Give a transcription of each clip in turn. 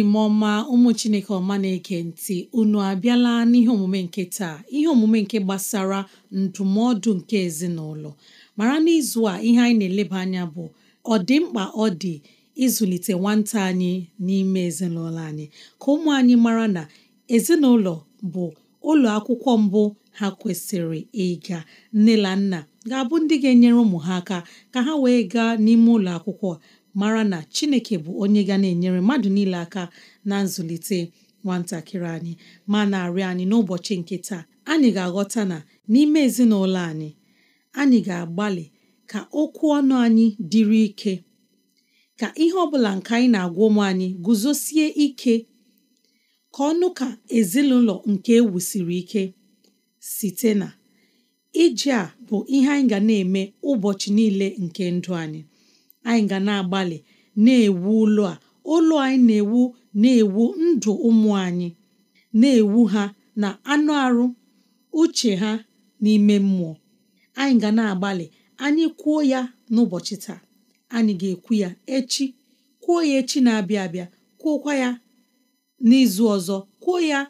enyi m ọma ụmụ chineke ọma na eke ntị unu abịala n'ihe omume nke taa ihe omume nke gbasara ndụmọdụ nke ezinụlọ mara n'izu a ihe anyị na-eleba anya bụ ọ dị mkpa ọ dị ịzụlite nwata anyị n'ime ezinụlọ anyị ka ụmụ anyị mara na ezinụlọ bụ ụlọ akwụkwọ mbụ ha kwesịrị ịga nne na nna ga-abụ ndị ga-enyere ụmụ ha aka ka ha wee gaa n'ime ụlọ akwụkwọ mara na chineke bụ onye ga na-enyere mmadụ niile aka na nzụlite nwatakịrị anyị ma na-arịọ anyị n'ụbọchị nke taa anyị ga-aghọta na n'ime ezinụlọ anyị anyị ga-agbalị ka okwu ọnụ anyị dịrị ike ka ihe ọbụla bụla nke anyị na-agwa ụmụ anyị guzosie ike ka ọnụ ka ezinụlọ nke ewusiri ike site na ije a bụ ihe anyị ga na-eme ụbọchị niile nke ndụ anyị anyị ga na-agbalị na-ewu ụlọ a ụlọ anyị na-ewu na-ewu ndụ ụmụ anyị na-ewu ha na anụ arụ uche ha n'ime mmụọ anyị ga na-agbalị anyị kwuo ya n'ụbọchị taa anyị ga-ekwu ya echi kwuo ya echi na-abịa abịa kwuokwa ya n'izu ọzọ kwuo ya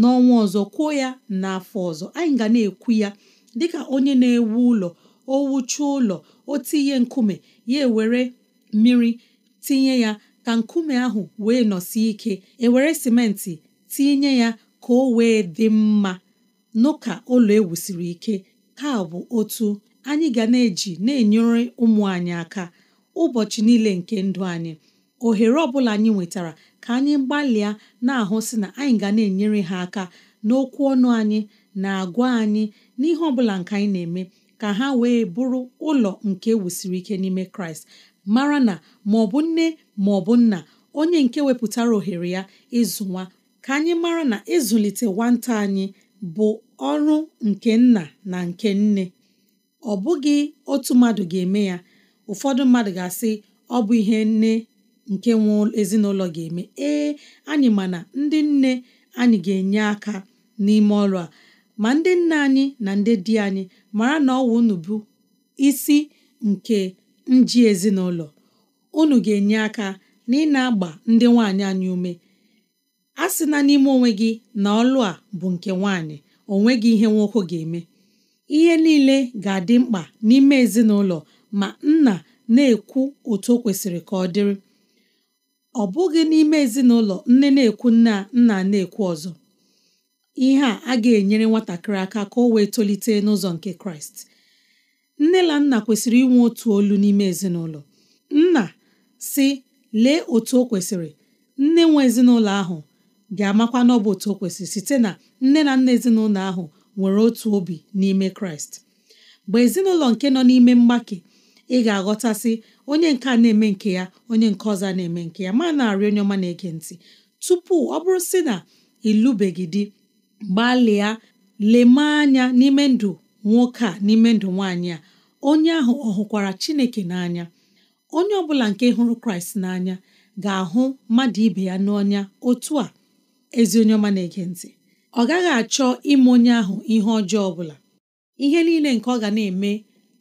n'ọnwa ọzọ kwuo ya n'afọ ọzọ anyị ga na-ekwu ya dịka onye na-ewu ụlọ o ụlọ o tinye nkume ya ewere mmiri tinye ya ka nkume ahụ wee nọsi ike ewere simenti tinye ya ka o wee dị mma n'ụka ụlọ ewusiri ike ka bụ otu anyị ga na-eji na-enyere ụmụ anyị aka ụbọchị niile nke ndụ anyị ohere ọbụla anyị nwetara ka anyị gbalịa na-ahụ si na anyị ga na-enyere ha aka n'okwu ọnụ anyị na agwa anyị n'ihe ọbụla nke anyị na-eme ka ha wee bụrụ ụlọ nke wusiri ike n'ime kraịst mara na ma ọ bụ nne ma ọ bụ nna onye nke wepụtara ohere ya ịzụ ka anyị mara na ịzụlite nwata anyị bụ ọrụ nke nna na nke nne ọ bụghị otu mmadụ ga-eme ya ụfọdụ mmadụ ga-asị ọ bụ ihe nne nke nwe ezinụlọ ga-eme ee anyị ma ndị nne anyị ga-enye aka n'ime ọrụ a ma ndị nna anyị na ndị di anyị mara na ọwụ unu bụ isi nke nji ezinụlọ unu ga-enye aka na ị na-agba ndị nwaanyị anyị ume a sị na n'ime onwe gị na ọlụ a bụ nke nwaanyị gị ihe nwoke ga-eme ihe niile ga-adị mkpa n'ime ezinụlọ ma nna na-ekwu otu o kwesịrị ka ọ dịrị ọ bụghị n'ime ezinụlọ nne na-ekwu nna nna na-ekwu ọzọ ihe a a ga-enyere nwatakịrị aka ka o wee tolite n'ụzọ nke kraịst nne na nna kwesịrị inwe otu olu n'ime ezinụlọ nna si lee otu o kwesịrị nne nwe ezinụlọ ahụ ga-amakwa na ọ bụ otu o kwesịrị site na nne na nna ezinụlọ ahụ nwere otu obi n'ime kraịst mgbe ezinụlọ nke nọ n'ime mgbake ị ga-aghọtasị onye nke a na-eme nke ya onye nke ọzọ na-eme nke ya ma na-arị onye ọma na-ege ntị tupu ọ bụrụ sị na ịlụbeghị di gbalịa leme anya n'ime ndụ nwoke a n'ime ndụ nwaanyị a onye ahụ ọ hụkwara Chineke n'anya onye ọ bụla nke hụrụ Kraịst n'anya ga-ahụ mmadụ ibe ya n'ọnya otu a ezi onye ọma na-ege ntị ọ gaghị achọ ime onye ahụ ihe ọjọọ ọ bụla ihe niile nke ọ ga na-eme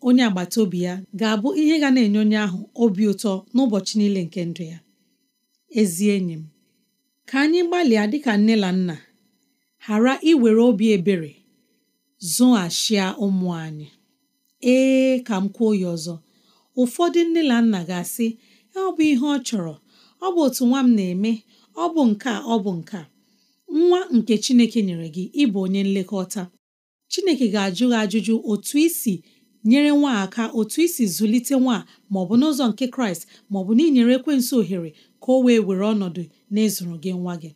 onye agbata obi ya ga-abụ ihe ga na-enye onye ahụ obi ụtọ n'ụbọchị niile nke ndụ ya ezi enyi m ka anyị gbalịa dịka nne na nna ghara iwere obi ebere zụghachia ụmụ anyị ee ka m kwuo ya ọzọ ụfọdụ nne na nna ga-asị ọ bụ ihe ọ chọrọ ọ bụ otu nwa m na-eme ọ bụ nke ọ bụ nke nwa nke Chineke nyere gị ịbụ onye nlekọta Chineke ga-ajụ gị ajụjụ otu isi nyere nwa aka otu isi zụlite nwa ma ọ bụ n'ụzọ nke Kraịst ma ọ bụ n'inyere ekwensị ohere ka o wee were ọnọdụ n'ịzụrụ gị nwa gị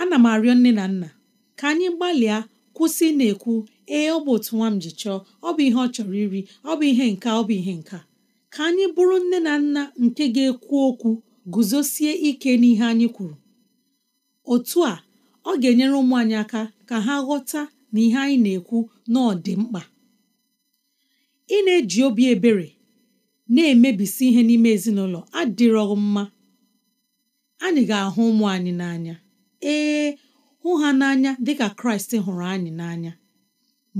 ana m arịọ nne na nna ka anyị gbalịa kwụsị na-ekwu ee ọ bụ otu nwa m ji chọọ ọ bụ ihe ọ chọrọ iri ọ bụ ihe nka ọ bụ ihe nka ka anyị bụrụ nne na nna nke ga-ekwu okwu guzosie ike n'ihe anyị kwuru otu a ọ ga-enyere ụmụ anyị aka ka ha ghọta na ihe anyị na-ekwu n'ọdị mkpa ị na-eji obi ebere na-emebisi ihe n'ime ezinụlọ adịrọghị mma anyị ga-ahụ ụmụ anyị n'anya ee hụ ha n'anya dịka kraịst hụrụ anyị n'anya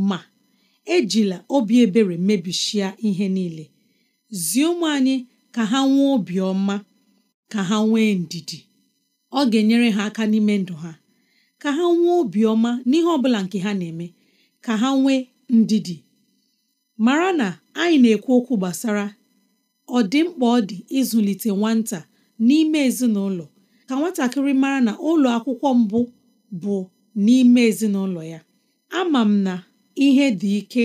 ma ejila obi ebere mebishia ihe niile zie ụmụ anyị ka ha nwee obiọma ka ha nwee ndidi ọ ga-enyere ha aka n'ime ndụ ha ka ha nwee obiọma n'ihe ọ bụla nke ha na-eme ka ha nwee ndidi mara na anyị na-ekwu okwu gbasara ọ dị mkpa ọ dị ịzụlite nwata n'ime ezinụlọ ka nwatakịrị mara na ụlọ akwụkwọ mbụ bụ n'ime ezinụlọ ya ama m na ihe dị ike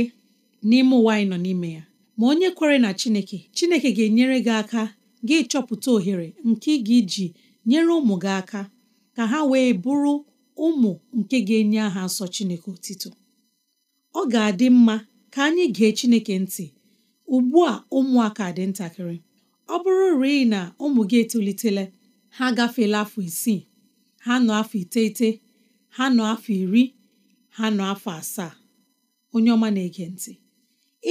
n'ime ụwa anyị nọ n'ime ya ma onye kwere na Chineke Chineke ga-enyere gị aka gị chọpụta ohere nke gị ga nyere ụmụ gị aka ka ha wee bụrụ ụmụ nke ga-enye aha nsọ Chineke otito ọ ga-adị mma ka anyị gee Chineke ntị ugbu a ụmụaka dị ntakịrị ọ bụrụ rịị na ụmụ gị etolitela ha gafeela afọ isii ha nọ afọ iteghete ha nọ afọ iri ha nọ afọ asaa onye ọma na-ege ntị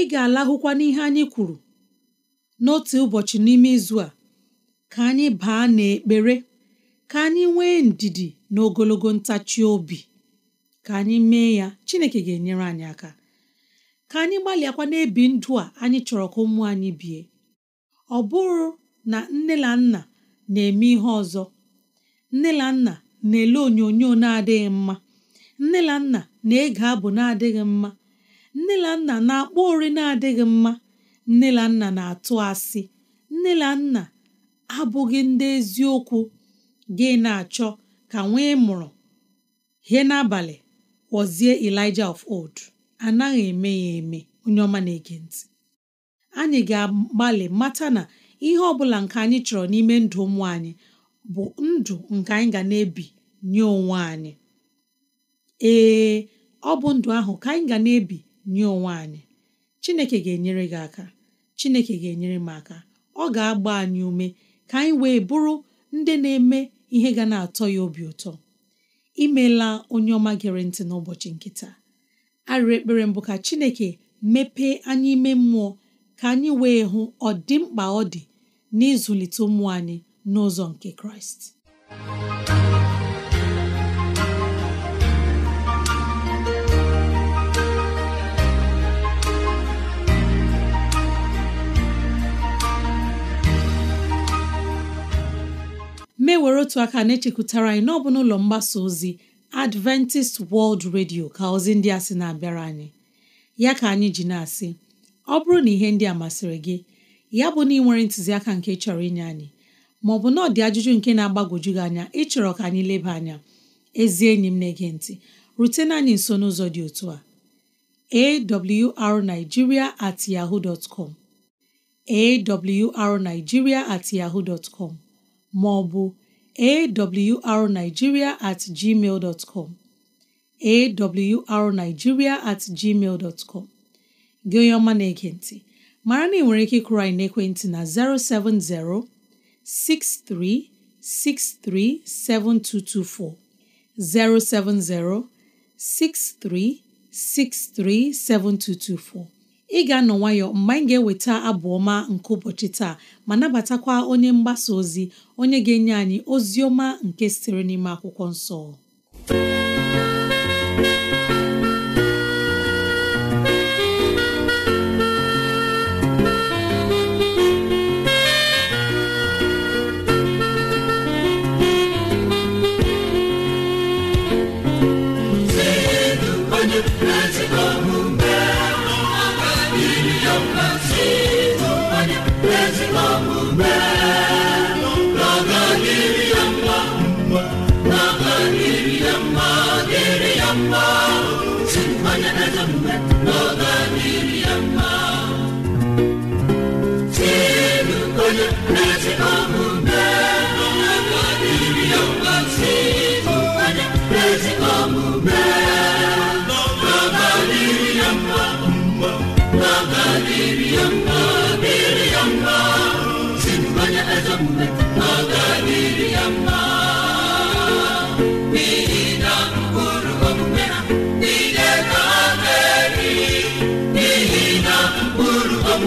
ị ga-alahụkwa n'ihe anyị kwuru n'otu ụbọchị n'ime izu a ka anyị baa n'ekpere ka anyị nwee ndidi na ogologo ntachi obi ka anyị mee ya Chineke ga-enyere anyị aka ka anyị gbalịakwa n'ebi ndụ a anyị chọrọ ka ụmụ anyị bie ọ bụrụ na nne na nna na-eme ihe ọzọ nne na nna na-ele onyonyo na-adịghị mma nne na nna na-ege abụ na-adịghị mma nne na nna na-akpọ ori na-adịghị mma nne na nna na-atụ asị nne na nna abụghị ndị eziokwu gị na-achọ ka nwee mụrụ ihe n'abalị kpọzie Elijah of old anaghị eme ya eme onye ọma na-ege ntị anyị ga-agbalị mata na ihe ọ bụla nke anyị chọrọ n'ime ndụ ụmụ anyị bụ ndụ nke anyị ga na-ebi nye onwe anyị ee ọ bụ ndụ ahụ ka anyị ga na-ebi nye onwe anyị Chineke ga-enyere gị aka Chineke ga-enyere m aka ọ ga-agba anyị ume ka anyị wee bụrụ ndị na-eme ihe ga na-atọ ya obi ụtọ imeela onye ọma gere ntị n'ụbọchị nke taa arịrị ekpere mbụ ka Chineke mepee anyị ime mmụọ ka anyị wee hụ ọdịmkpa ọ dị n'ịzụlite ụmụ anyị n'ụzọ nke kraịst were otu aka na-echekwutara anyị n'ọbụ n'ụlọ mgbasa ozi Adventist World Radio ka ozi ndị a sị na-abịara anyị ya ka anyị ji na-asị ọ bụrụ na ihe ndị a masịrị gị ya bụ na ị nwere ntụziaka nke chọrọ inye anyị maọbụ na ọ dị ajụjụ nke na agbagoju gị anya ịchọrọ ka anyị leba anya ezi enyi m na-ege ntị rutena anyị nso n'ụzọ dị otu a awrnigeria at yahoo dot arigiria awrnigeria at yahoo maọbụ arigiria at gmail dot com at gmail gị onye ọma na-ege ntị mara na ị nwere ike ịkụrụ anyị n'ekwentị na 070 07063637224 ị ga-anọ nwayọ mgbe anyị ga-eweta abụ ọma nke ụbọchị taa ma nabatakwa onye mgbasa ozi onye ga-enye anyị ozi ọma nke sitere n'ime akwụkwọ nsọ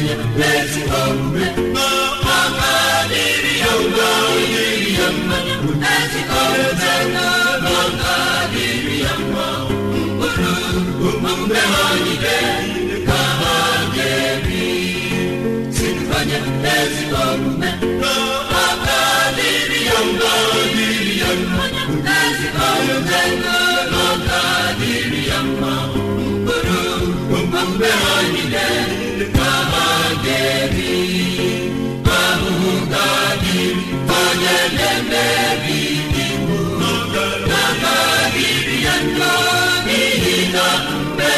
anyị na-eti ha ya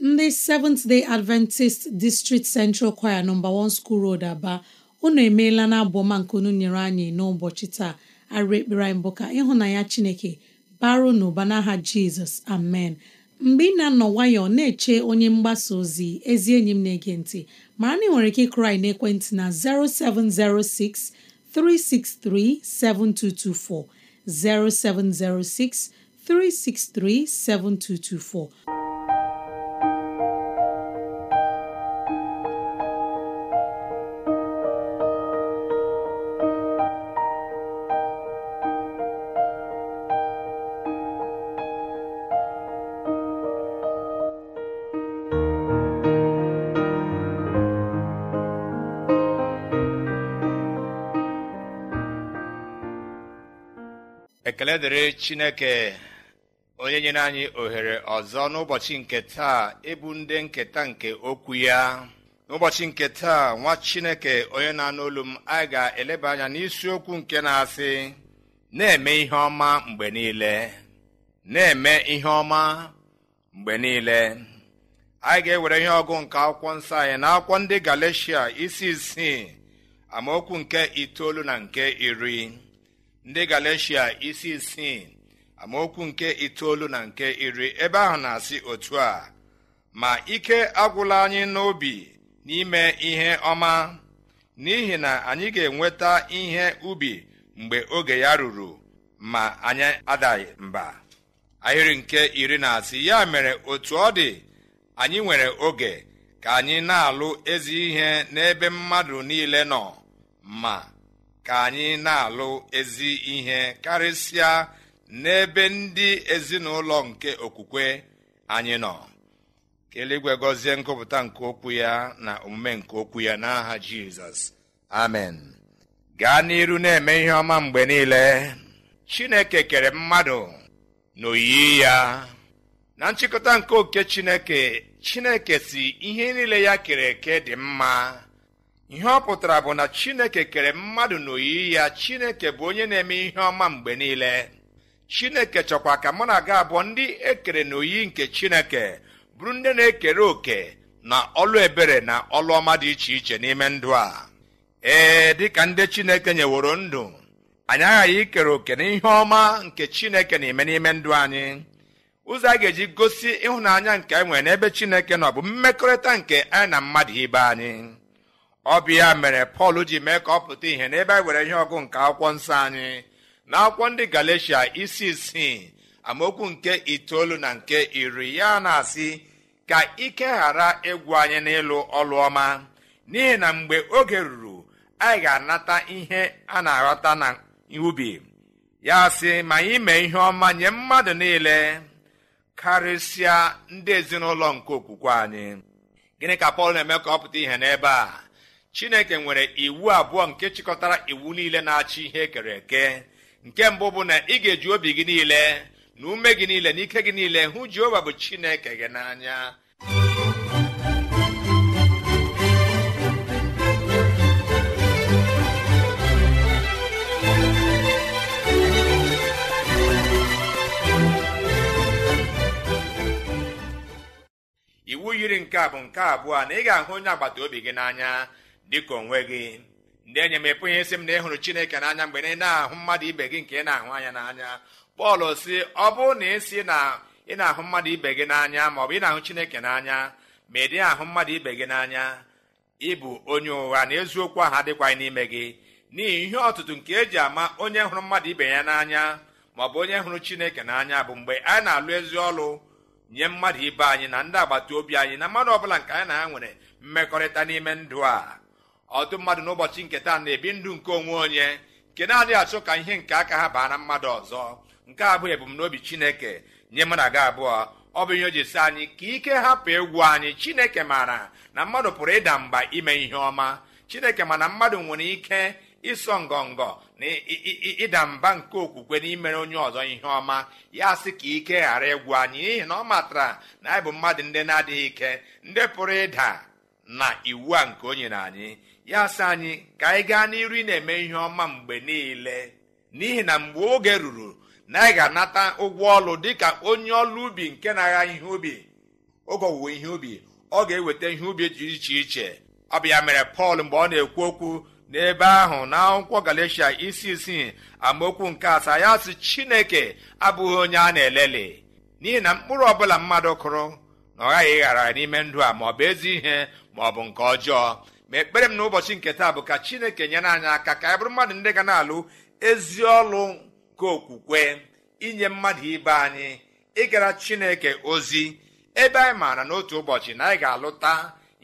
ndị seventh day adventist district central choir nọmba one school road aba unu emeela na abụọma nke unu nyere anyị n'ụbọchị taa arụ ekpere anyị bụ ka ịhụnanya chineke baro n'ụba n'aha jizọs amen mgbe ị na-anọ ọ na-eche onye mgbasa ozi ezi enyi m na-ege ntị mara na ị nwere ike ịkụrụ anyị n'ekwentị na 0706 363 7224 0706 363 7224 ekele dịrị chineke onye nyere anyị ohere ọzọ n'ụbọchị nke taa ịbụ e ndị nketa nke okwu ya n'ụbọchị nke taa nwa chineke onye na-anụ olu m anyị ga-eleba anya n'isiokwu nke na-asị na-eme ihe ọma mgbe niile na-eme ihe ọma mgbe niile anyị ga-ewere ihe ọgụ nke akwụkwọ nsọ anyị na akwụkwọ ndị Galeshia isi isii amaokwu nke itoolu na nke iri ndị galeshia isi isii amaokwu nke itoolu na nke iri ebe ahụ na-asị otu a ma ike agwụla anyị n'obi n'ime ihe ọma n'ihi na anyị ga-enweta ihe ubi mgbe oge ya ruru ma anyị adaghị mba ahịrị nke iri na asị ya mere otu ọ dị anyị nwere oge ka anyị na-alụ ezi ihe n'ebe mmadụ niile nọ ma ka anyị na-alụ ezi ihe karịsịa n'ebe ndị ezinụlọ nke okwukwe anyị nọ keligwe gọzie ngụpụta nke okwu ya na omume nke okwu ya n'aha jizọs amen gaa n'iru na-eme ihe ọma mgbe niile chineke kere mmadụ n'oyiyi ya na nchịkọta nke oke chineke chineke si ihe niile ya kere eke dị mma ihe ọ pụtara bụ na chineke kere mmadụ n'oyiyi ya chineke bụ onye na-eme ihe ọma mgbe niile chineke chọkwa ka mụ na aga abụọ ndị ekere n'oyiyi nke chineke bụrụ ndị na-ekere òkè na ọlụ ebere na ọlụ ọma dị iche iche n'ime ndụ a ee dịka ndị chineke nyeworo ndụ anyị aghaghị ikere òkè na ihe ọma nke chineke na-eme n'ime ndụ anyị ụzọ a ga-eji gosi ịhụnanya nke anyị nwere n'ebe chineke nọ bụ mmekọrịta nke anyị na mmadụ ibe anyị ọ bụ ya mere pọl ji mee ka ọ pụta ihe n'ebe anyị were ihe ọgụ nke akwụkwọ nsọ anyị na akwụkwọ ndị galatia isi isii amaokwu nke itoolu na nke iri ya na-asị ka ike ghara ịgwụ anyị n'ịlụ ọlụ ọma n'ihi na mgbe oge ruru anyị ga-anata ihe a na-aghọta na ubi ya sị ma anyị mee ihe ọma nye mmadụ niile karịsịa ndị ezinụlọ nke okwukwe anyị gịnị ka pọl na-eme ka ọ pụta ihe n'ebe a chineke nwere iwu abụọ nke chịkọtara iwu niile na-achị ihe kere eke nke mbụ bụ na ị ga-eji obi gị niile na ume gị niile na ike gị niile hụ jehova bụ chineke gị n'anya iwu yiri nke a bụ nke abụọ na ị ga-ahụ onye agbata obi gị n'anya dịka onwe gị ndị enye m ịpụghị isi m na ịhụrụ chineke n'anya mgbe ị na-ahụ mmadụ ibe gị nke ị na-ahụ anya n'anya pọl si ọ bụrụ na ị na ị na-ahụ mmadụ ibe gị n'anya ma ọ bụ ị na-ahụ chineke n'anya ma ị ahụ mmadụ ibe gị n'anya ịbụ onye ụgha na eziokwu ahụ adịkwaghị n'ime gị n'ihi ihe ọtụtụ nke eji ama onye hụrụ mmadụ ibe ya n'anya ma ọ bụ onye hụrụ chineke n'anya bụ mgbe anyị na-alụ ezi ọlụ nye mmadụ ibe anyị na ndị agbata obi anyị na mmadụ ọbụla nke anyị na ya nwere mmekọrịta n'ime ndụ a ọtụ mmadụ n'ụbọchị nke taa na-ebi ndụ nke onwe onye nke na-adịghị achọ ka ihe nke aka ha baa na mmadụ ọzọ nke abụọ ebumnobi chineke nye mụ na gị abụọ ọ bụ ihe o ji anyị ka ike hapụ egwu anyị chineke maara na mmadụ pụrụ ịda mba ime ihe ọma chineke ma na mmadụ nwere ike ịsọ ngọngọ na ịda mba nke okwukwe n'imere onye ọzọ ihe ọma ya sị ka ike ghara egwu anyị n'ihi na ọ matara na anyị bụ mmadụ ndị na-adịghị ike ndị pụrụ ịda na iwu a nke onye na anyị ya sị anyị ka anyị gaa n'iru na-eme ihe ọma mgbe niile n'ihi na mgbe oge ruru na anyị ga-anata ụgwọ ọlụ dịka onye ọlụ ubi nke na-agha ihe ubi oge owuwe ihe ubi ọ ga-eweta ihe ubi dị iche iche ọ mere pọl mgbe ọ na-ekwu okwu n'ebe ahụ na akwụkwọ galatia isi isii amaokwu nke asaa ya sị chineke abụghị onye a na-eleli n'ihi na mkpụrụ ọbụla mmadụ kụrụ na ọ ghaghị ịghara n'ime ndụ a ma ọ bụ ezi ihe ma ọ bụ nke ọjọọ ma ekpere m na ụbọchị nke taa bụ ka chineke nyere anyị aka ka anyị bụrụ mmadụ ndị ga na-alụ ezi ọlụ nke okwukwe inye mmadụ ibe anyị ịgara chineke ozi ebe anyị maara n'otu ụbọchị na anyị ga-alụta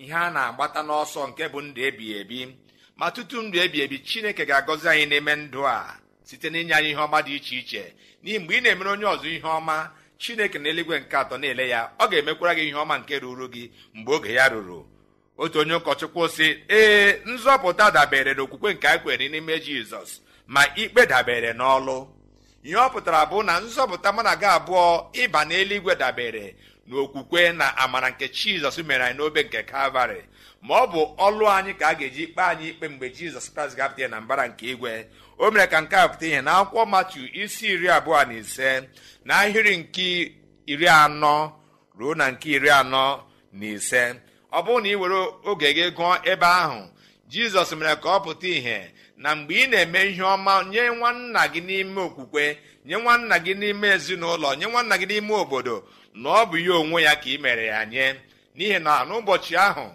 ihe a na-agbata n'ọsọ nke bụ ndụ ebighị ebi ma tutu ndụ ebighị ebi chineke ga-agọzi anyị n'ime ndụ a site n'inye anyị ihe ọma dị iche iche n'ihi mgbe ị na-emere onye ọzọ ihe ọma chineke na eluigwe nke atọ na-ele ya ọ ga-emekwara gị ihe ọma nke ruru gị mgbe oge ya ruru otu onye ụkọchukwu sị ee nzọpụta dabere n'okwukwe nke anyị kwere n'ime jizọs ma ikpe dabere n'ọlụ ihe ọ pụtara bụ na nzọpụta mụ na gị abụọ ịba n'eluigwe dabere okwukwe na amara nke jizọs mere anyị n'obe nke kalvarị ma ọ bụ ọlụ anyị ka a ga-eji kpee anyị ikpe mgbe jizọs kraịst ga ya na mbara nke igwe o mere ka nke a pụta ihe na akwụkwọ matu isi iri abụọ na ise na ahịrị nke iri anọ ruo na nke iri anọ na ise ọ bụrụ na ị were oge gị gụọ ebe ahụ jizọs mere ka ọ pụta ìhè na mgbe ị na-eme ihe ọma nye nwanna gị n'ime okwukwe nye nwanna gị n'ime ezinụlọ nye nwanna gị n'ime obodo na ọ bụ ihe onwe ya ka ị mere ya nye n'ihi na n'ụbọchị ahụ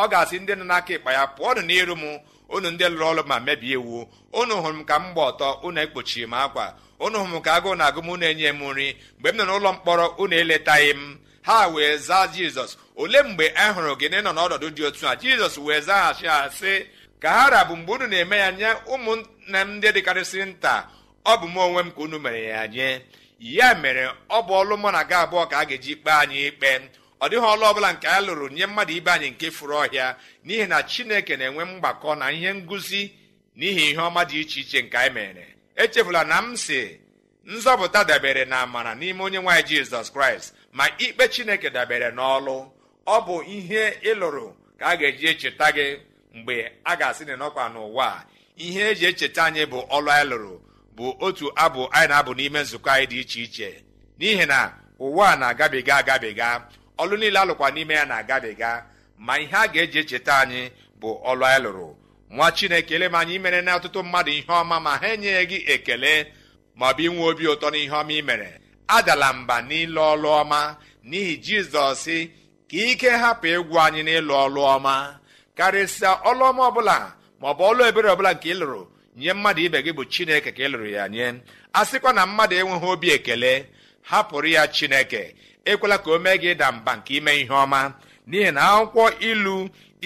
ọ ga-asị ndị nọ n'aka ịkpa ya pụọ nụ n'iru m unu ndị lụrụ ọrụ ma mebie iwu unu hụrụ m ka m gba ọtọ unu ekpochiri m akwa unu hụrụ m ka agụụ na agụm unu enye m nri mgbe m nọ n'ụlọ mkpọrọ unu eletaghị m ha wee zaa jizọs olee mgbe a e hụrụ gịnị nọ n'ọnọdụ dị otu a jizọs wee zaghachi asị sị ka ha rabụ mgbe unu na-eme ya nye ụmụnna m ndị dịkarịsịrị nta ọ bụ m onwe m ka unu mere ya nye ya mere ọ bụ ọlụ mụ na gị abụọ ka a ga-eji kpee anyị ikpe ọ dịghị ọlụ ọbụla nke a lụrụ nye mmadụ ibe anyị nke furu ọhịa n'ihi na chineke na-enwe mgbakọ na ihe ngụzi n'ihi ihe ọma dị iche iche nke anyị mere echefula na m si nzọpụta dabere na amara n'ime onye nwaanyị jizọs kraịst ma ikpe chineke dabere n'ọlụ ọ bụ ihe ịlụrụ ka a ga-eji echeta gị mgbe a ga-asị na n'ụwa ihe eji echeta anyị bụ ọlụ anyị lụrụ bụ otu abụ anyị na-abụ n'ime nzukọ anyị dị iche iche n'ihi na ụwa na-agabiga agabiga ọlụ niile alụkwa n'ime ya na-agabiga ma ihe a ga-eji echeta anyị bụ ọlụ anyị lụrụ nwa chineke ele m anyị imere na ọtụtụ mmadụ ihe ọma ma ha enyeghị gị ekele maọbụ inwe obi ụtọ n'ihe ọma ị mere adala mba n'ịlụ ọlụ ọma n'ihi jizọs ka ike hapụ ịgwụ anyị n'ịlụ ọlụ ọma karịsịa ọlụ ọma ọbụla maọbụ ọlụ ebere ọbụla nke ị lụrụ nye mmadụ ibe gị bụ chineke ka ị lụrụ ya nye a sịkwa na mmadụ enweghị obi ekele hapụrụ ya chineke ekwela ka o mee gị ịda mba nke ime ihe ọma n'ihi na akwụkwọ ilu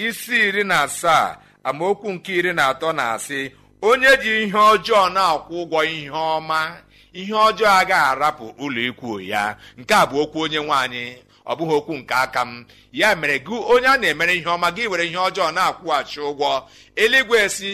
isi iri na asaa amaokwu nke iri na atọ na-asị onye ji ihe ọjọọ na-akwụ ụgwọ ihe ọma ihe ọjọọ agaghị arapụ ụlọ ikwu ya nke a bụ okwu onye nwaanyị ọ bụghị okwu nke aka m ya mere gị onye a na-emere ihe ọma gị were ihe ọjọọ na-akwụghachi ụgwọ eluigwe si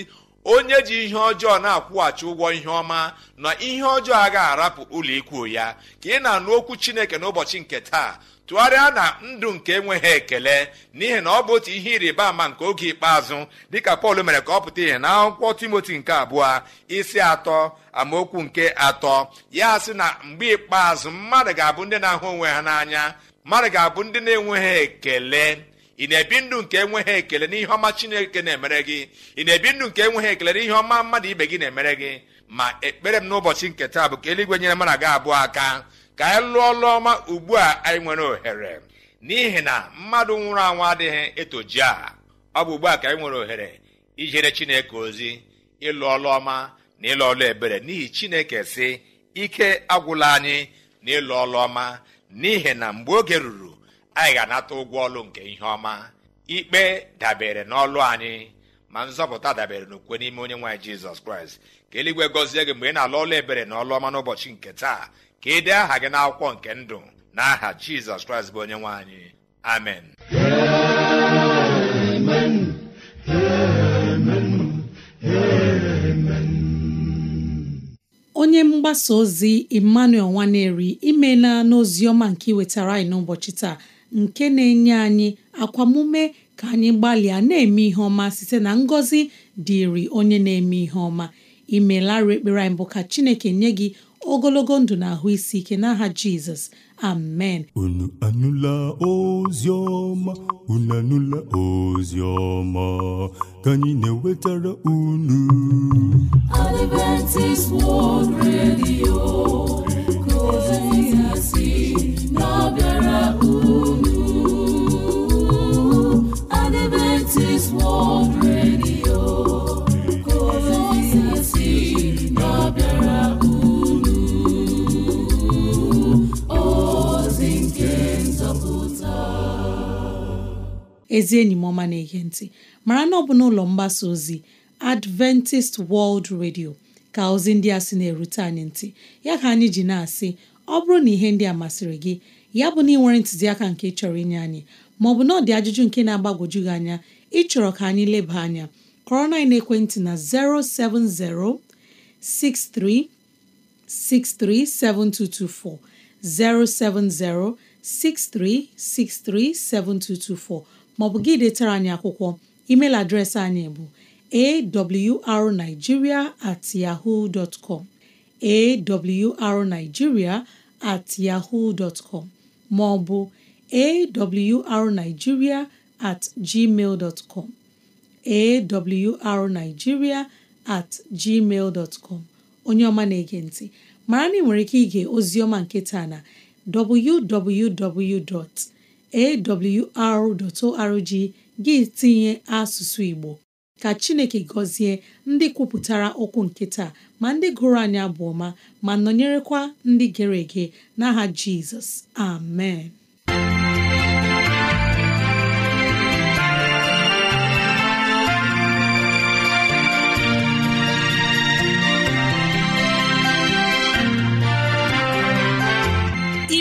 onye ji ihe ọjọọ na-akwụghachi ụgwọ ihe ọma na ihe ọjọọ agaghị arapụ ụlọ ikwu ya ka ị na-anụ okwu chineke n'ụbọchị nke taa tụgharịa na ndụ nke enweghị ekele n'ihi na ọ bụ otu ihe ịrịba ama nke oge ikpeazụ dịka pọl mere ka ọ pụta ihe na akwụkwọ timoti nke abụọ isi atọ amaokwu nke atọ ya sị na mgbe ikpeazụ mmadụ ga-abụ ndị na-ahụ onwe ha n'anya mmadụ ga-abụ ndị na-enweghị ekele ị na-ebi ndụ nke enweghị ekele n'ihe ọma chineke na-emere gị ị na-ebi ndụ nke enweghị ekele n'ihe ọma mmadụ ibe gị na-emere gị ma ekpere m n'ụbọchị nke taa bụ ka eluigwe nyere m gị abụọ aka ka anyị e lụọ ọlụ ugbu a anyị nwere ohere n'ihi na mmadụ nwụrụ anwụ adịghị etoji a ọ bụ ugbu a ka anyị nwere ohere ijere chineke ozi ịlụ ọlụọma na ịlụ ọlụ ebere n'ihi chineke si ike agwụla anyị na ịlụ ọlụọma ọma n'ihi na mgbe oge ruru anyị ga-anata ụgwọ ọlụ nke ihe ọma ikpe dabere n'ọlụ anyị ma nzọpụta dabere n'okwe n'ime onye nwaanyị jizọs kraịst ka eluigwe gọzie gị mgbe ị na-alụ ọlụ ebere na ọlụ ọma n'ụbọchị nke taa ka ị aha gị n'akwụkwọ nke ndụ na aha jizọs kraịst bụ onye nwe amen onye mgbasa ozi emmanuel nwaneri n'ozi n'oziọma nke iwetara anyị n'ụbọchị taa nke na-enye anyị akwamume ka anyị gbalịa na-eme ihe ọma site na ngọzi dịịrị onye na-eme ihe ọma imelarị ekpere anyị bụ ka chineke nye gị ogologo ndụ na ahụ isi ike n'aha jizọs amen unu anụla ozioma ọma unu anụla ozi ọma ka anyị na-ewetara unu unu Adventist World ezi enyi m ọma na-ege ntị mara na ọ bụ n'ụlọ mgbasa ozi Adventist World Radio ka ozi ndị a sị na-erute anyị ntị ya ka anyị ji na-asị ọ bụrụ na ihe ndị a masịrị gị ya bụ na ị nwere ntụziaka nke ị chọrọ inye anyị maọbụ na ọ ajụjụ nke na-agbagwoju gị anya ịchọrọ ka anyị leba anya kọrọ na ekwentị na 07063637224 07063637224 maọbụ gị detara anyị akwụkwọ email adreesị anyị bụ awrnigeria at yahoo com at maọbụ awrnigeria at gmail onye ọma na-ege ntị mara na ị nwere ike ige ozi ọma nke taa na www. awr.org gị tinye asụsụ Igbo ka Chineke gọzie ndị kwupụtara okwu nke taa ma ndị gụrụ anya bụ ọma ma nọnyerekwa ndị gere ege n'aha Jizọs amen